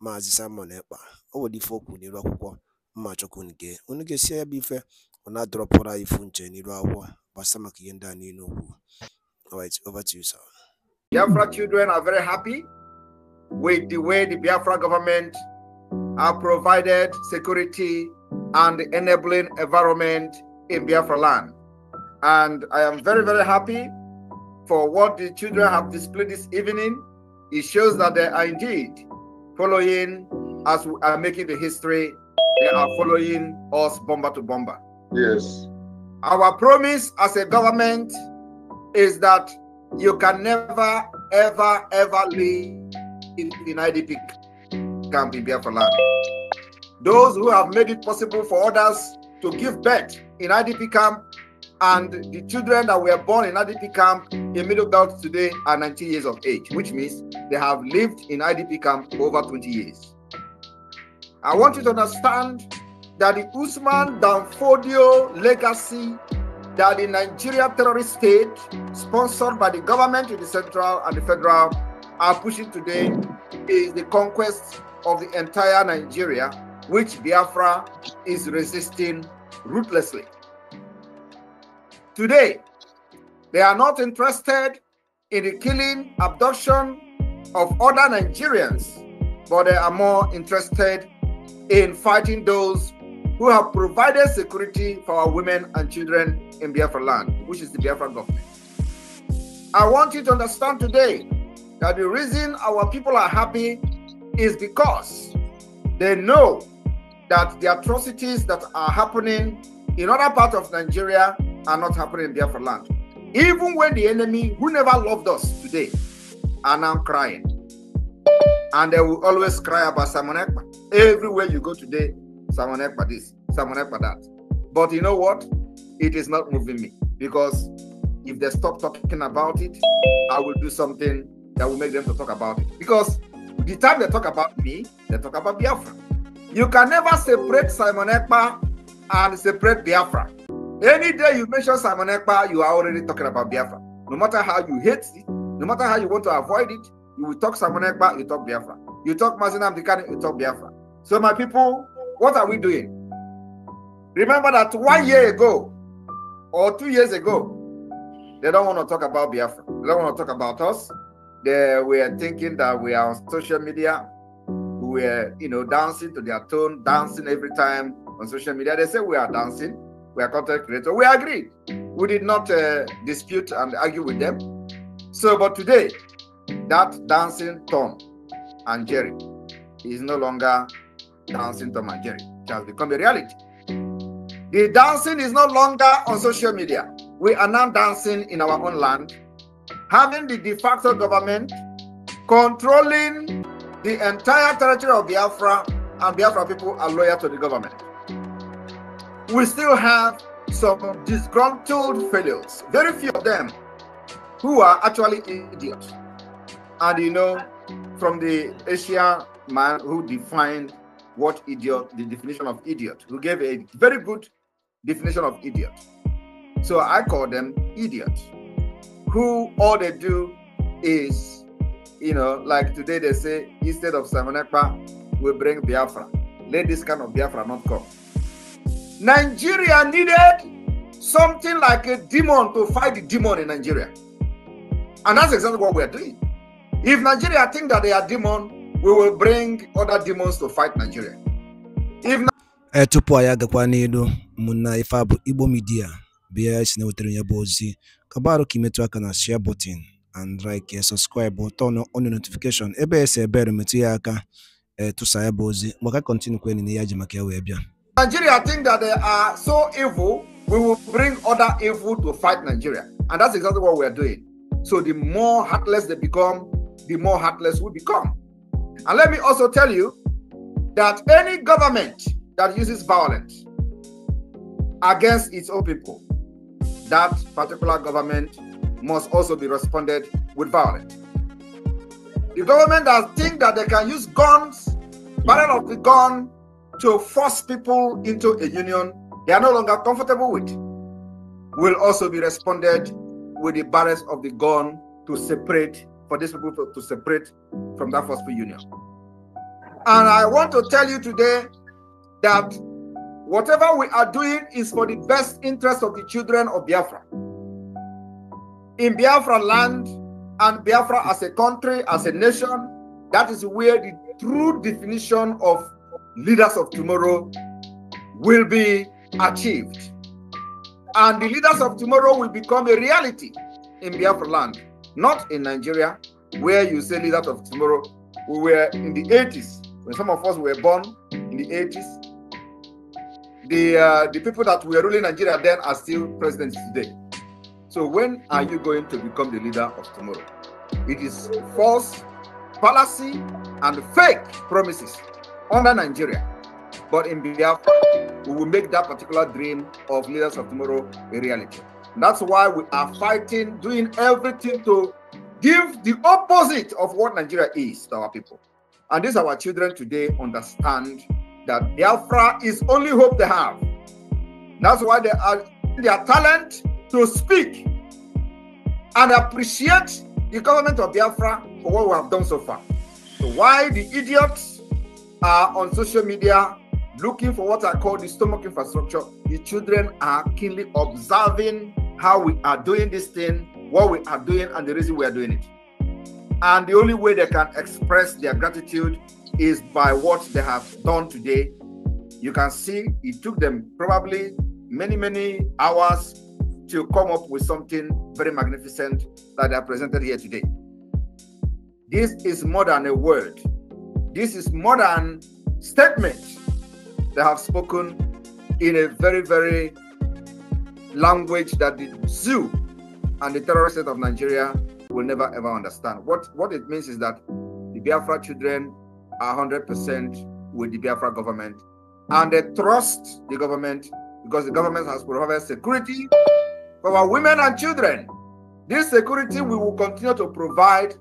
Maazị Simon Ekpa o nwere ife o kwuru n'iru akwụkwọ mma chọkwu unu gee unu gesie ya bụ ife o ifu nche n'iru akwụkwọ gbasa maka ihe ndị a niile alright over to you sir Biafra children are very happy with the way the Biafra government have provided security and enabling environment in Biafra land. And I am very, very happy for what the children have displayed this evening. It shows that they are indeed following as we are making the history, they are following us bomber to bomber. Yes. Our promise as a government is that you can never, ever, ever leave in, in IDP camp in Biafra land. Those who have made it possible for others to give birth in IDP camp and the children that were born in IDP camp in Middle Belt today are 19 years of age, which means they have lived in IDP camp over 20 years. I want you to understand that the Usman Danfodio legacy that the Nigeria terrorist state, sponsored by the government in the central and the federal, are pushing today is the conquest of the entire Nigeria, which Biafra is resisting ruthlessly. Today, they are not interested in the killing, abduction of other Nigerians, but they are more interested in fighting those who have provided security for our women and children in Biafra land, which is the Biafra government. I want you to understand today that the reason our people are happy is because they know that the atrocities that are happening in other parts of Nigeria are not happening in Biafra land. Even when the enemy who never loved us today are now crying. And they will always cry about Simon Ekpa. Everywhere you go today, Simon Ekpa this, Simon Ekpa that. But you know what? It is not moving me because if they stop talking about it, I will do something that will make them to talk about it. Because the time they talk about me, they talk about Biafra. You can never separate Simon Ekpa and separate Biafra. Any day you mention Simon Ekpa, you are already talking about Biafra. No matter how you hate it, no matter how you want to avoid it, you will talk Simon Ekpa, you talk Biafra. You talk Mazinam Dikani, you talk Biafra. So, my people, what are we doing? Remember that one year ago or two years ago, they don't want to talk about Biafra. They don't want to talk about us. They were thinking that we are on social media. We are, you know, dancing to their tune, dancing every time on social media. They say we are dancing. We are content creators. We agreed. We did not uh, dispute and argue with them. So, but today, that dancing Tom and Jerry is no longer dancing Tom and Jerry. It has become a reality. The dancing is no longer on social media. We are now dancing in our own land, having the de facto government controlling the entire territory of Biafra, and Biafra people are loyal to the government we still have some disgruntled fellows, very few of them, who are actually idiots. And you know, from the Asia man who defined what idiot, the definition of idiot, who gave a very good definition of idiot. So I call them idiots, who all they do is, you know, like today they say, instead of Samanekpa, we bring Biafra. Let this kind of Biafra not come. Nigeria needed something like a demon to fight the demon in Nigeria. And that's exactly what we're doing. If Nigeria think that they are demon, we will bring other demons to fight Nigeria. If na- eh, tupu anyị agakwa n'elu mụna ife bụ Igbo midia bịa si na-ewetara ya bụ ozi kabarụ ka imetụ aka na share button and like eh, subscribe turn on notification ebe esi ebere metụ ya aka eh, tụsa ya bụ ozi maka kọntinụ kwenị na ya ji maka ya wee bịa Nigeria think that they are so evil, we will bring other evil to fight Nigeria. And that's exactly what we are doing. So the more heartless they become, the more heartless we become. And let me also tell you that any government that uses violence against its own people, that particular government must also be responded with violence. The government that think that they can use guns, barrel of the gun, to force people into a union they are no longer comfortable with will also be responded with the barrels of the gun to separate for these people to, to separate from that forceful union. And I want to tell you today that whatever we are doing is for the best interest of the children of Biafra. In Biafra land and Biafra as a country, as a nation, that is where the true definition of leaders of tomorrow will be achieved. And the leaders of tomorrow will become a reality in Biafra land, not in Nigeria, where you say leaders of tomorrow. We were in the 80s, when some of us were born in the 80s. The, uh, the people that were ruling Nigeria then are still presidents today. So when are you going to become the leader of tomorrow? It is false, fallacy, and fake promises under Nigeria, but in Biafra, we will make that particular dream of leaders of tomorrow a reality. that's why we are fighting, doing everything to give the opposite of what Nigeria is to our people. And this our children today understand that Biafra is only hope they have. That's why they are their talent to speak and appreciate the government of Biafra for what we have done so far. So why the idiots are on social media looking for what I call the stomach infrastructure. The children are keenly observing how we are doing this thing, what we are doing, and the reason we are doing it. And the only way they can express their gratitude is by what they have done today. You can see it took them probably many, many hours to come up with something very magnificent that they presented here today. This is more than a word this is modern statement. They have spoken in a very, very language that the zoo and the terrorist state of Nigeria will never ever understand. What what it means is that the Biafra children are 100% with the Biafra government and they trust the government because the government has provided security for our women and children. This security we will continue to provide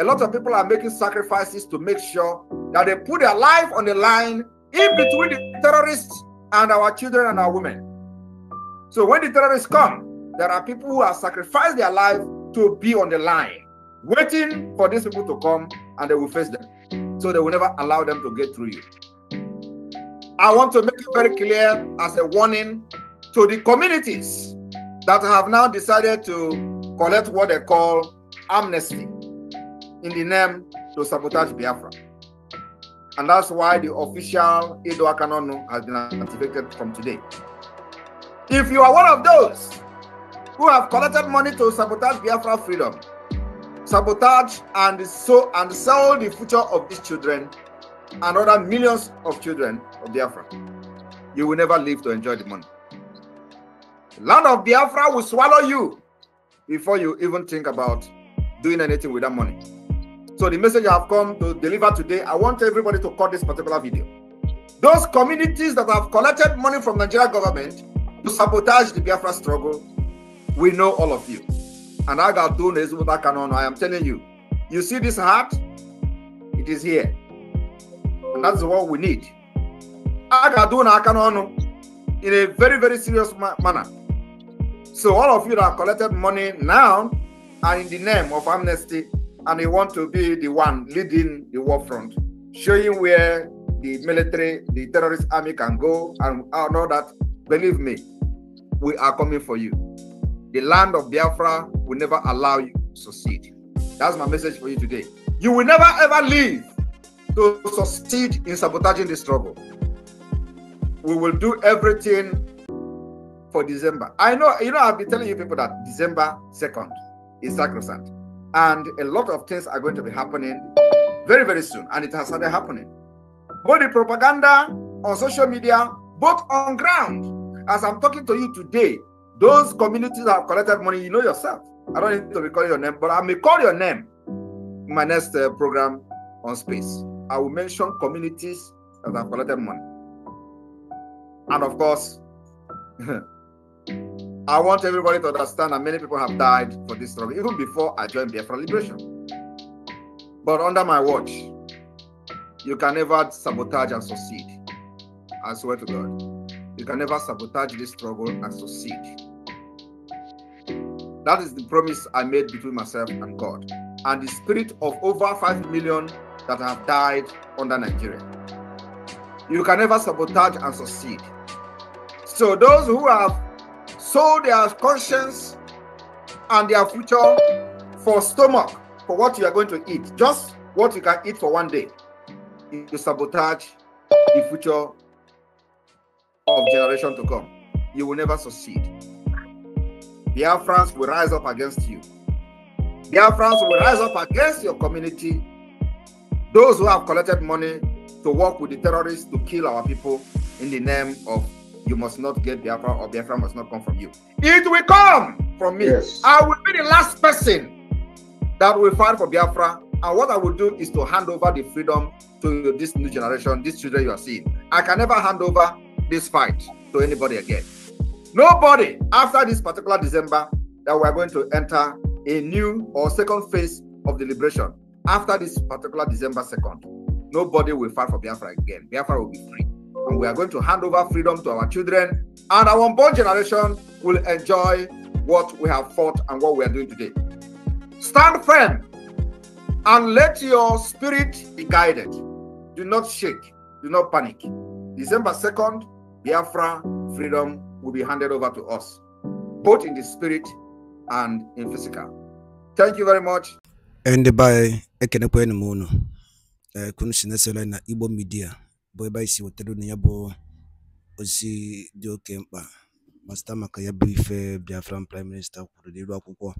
a lot of people are making sacrifices to make sure that they put their life on the line in between the terrorists and our children and our women. So when the terrorists come, there are people who have sacrificed their life to be on the line, waiting for these people to come and they will face them. So they will never allow them to get through you. I want to make it very clear as a warning to the communities that have now decided to collect what they call amnesty in the name to sabotage Biafra. And that's why the official Edo Akanono has been activated from today. If you are one of those who have collected money to sabotage Biafra freedom, sabotage and so and sell the future of these children and other millions of children of Biafra, you will never live to enjoy the money. The land of Biafra will swallow you before you even think about doing anything with that money. So the message I've come to deliver today, I want everybody to cut this particular video. Those communities that have collected money from Nigeria government to sabotage the Biafra struggle, we know all of you. And I got is what with canon. I am telling you, you see this heart, it is here. And that's what we need. I got I canon in a very, very serious ma manner. So all of you that collected money now are in the name of amnesty and you want to be the one leading the war front, showing where the military, the terrorist army can go and all that, believe me, we are coming for you. The land of Biafra will never allow you to succeed. That's my message for you today. You will never ever leave to succeed in sabotaging the struggle. We will do everything for December. I know, you know, I've been telling you people that December 2nd is sacrosanct. And a lot of things are going to be happening very, very soon. And it has started happening. Both the propaganda on social media, both on ground. As I'm talking to you today, those communities have collected money, you know yourself. I don't need to recall your name, but I may call your name in my next uh, program on space. I will mention communities that have collected money. And of course, I want everybody to understand that many people have died for this struggle, even before I joined Biafra Liberation. But under my watch, you can never sabotage and succeed. I swear to God. You can never sabotage this struggle and succeed. That is the promise I made between myself and God. And the spirit of over 5 million that have died under Nigeria. You can never sabotage and succeed. So those who have sold their conscience and their future for stomach, for what you are going to eat, just what you can eat for one day. You sabotage the future of generation to come. You will never succeed. The Afrans will rise up against you. The Afrans will rise up against your community. Those who have collected money to work with the terrorists to kill our people in the name of you must not get Biafra or Biafra must not come from you. It will come from me. Yes. I will be the last person that will fight for Biafra. And what I will do is to hand over the freedom to this new generation, these children you are seeing. I can never hand over this fight to anybody again. Nobody after this particular December that we are going to enter a new or second phase of the liberation after this particular December 2nd. Nobody will fight for Biafra again. Biafra will be free and we are going to hand over freedom to our children, and our unborn generation will enjoy what we have fought and what we are doing today. Stand firm and let your spirit be guided. Do not shake, do not panic. December 2nd, Biafra freedom will be handed over to us, both in the spirit and in physical. Thank you very much. And by Ekenekwe Munu, eh, Kunishinesela na Ibo Media. bụ ebe anyị si wetara unu ya bụ ozi dị oke mkpa ma maka ya bụ ife Biafran prime minista kwuru n'elu akwụkwọ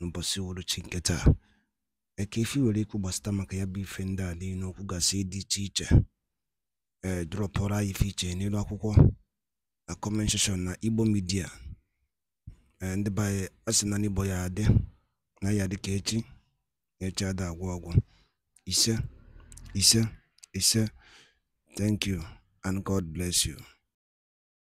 n'ụbọchị uhuruchi nke taa eke ife nwere ikwu gbasata maka ya bụ ife ndị a niile gasị dị iche iche ee eh, drọpụrụ anyị ife iche n'elu akwụkwọ na comment na Igbo midia, ee eh, ndị be anyị asị na n'Igbo ya adị na ya dịka ka echi echi ada agwọ ọgwụ ise ise ise Thank you, and God bless you.